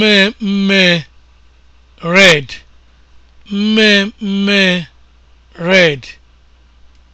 mmemme red mmemme red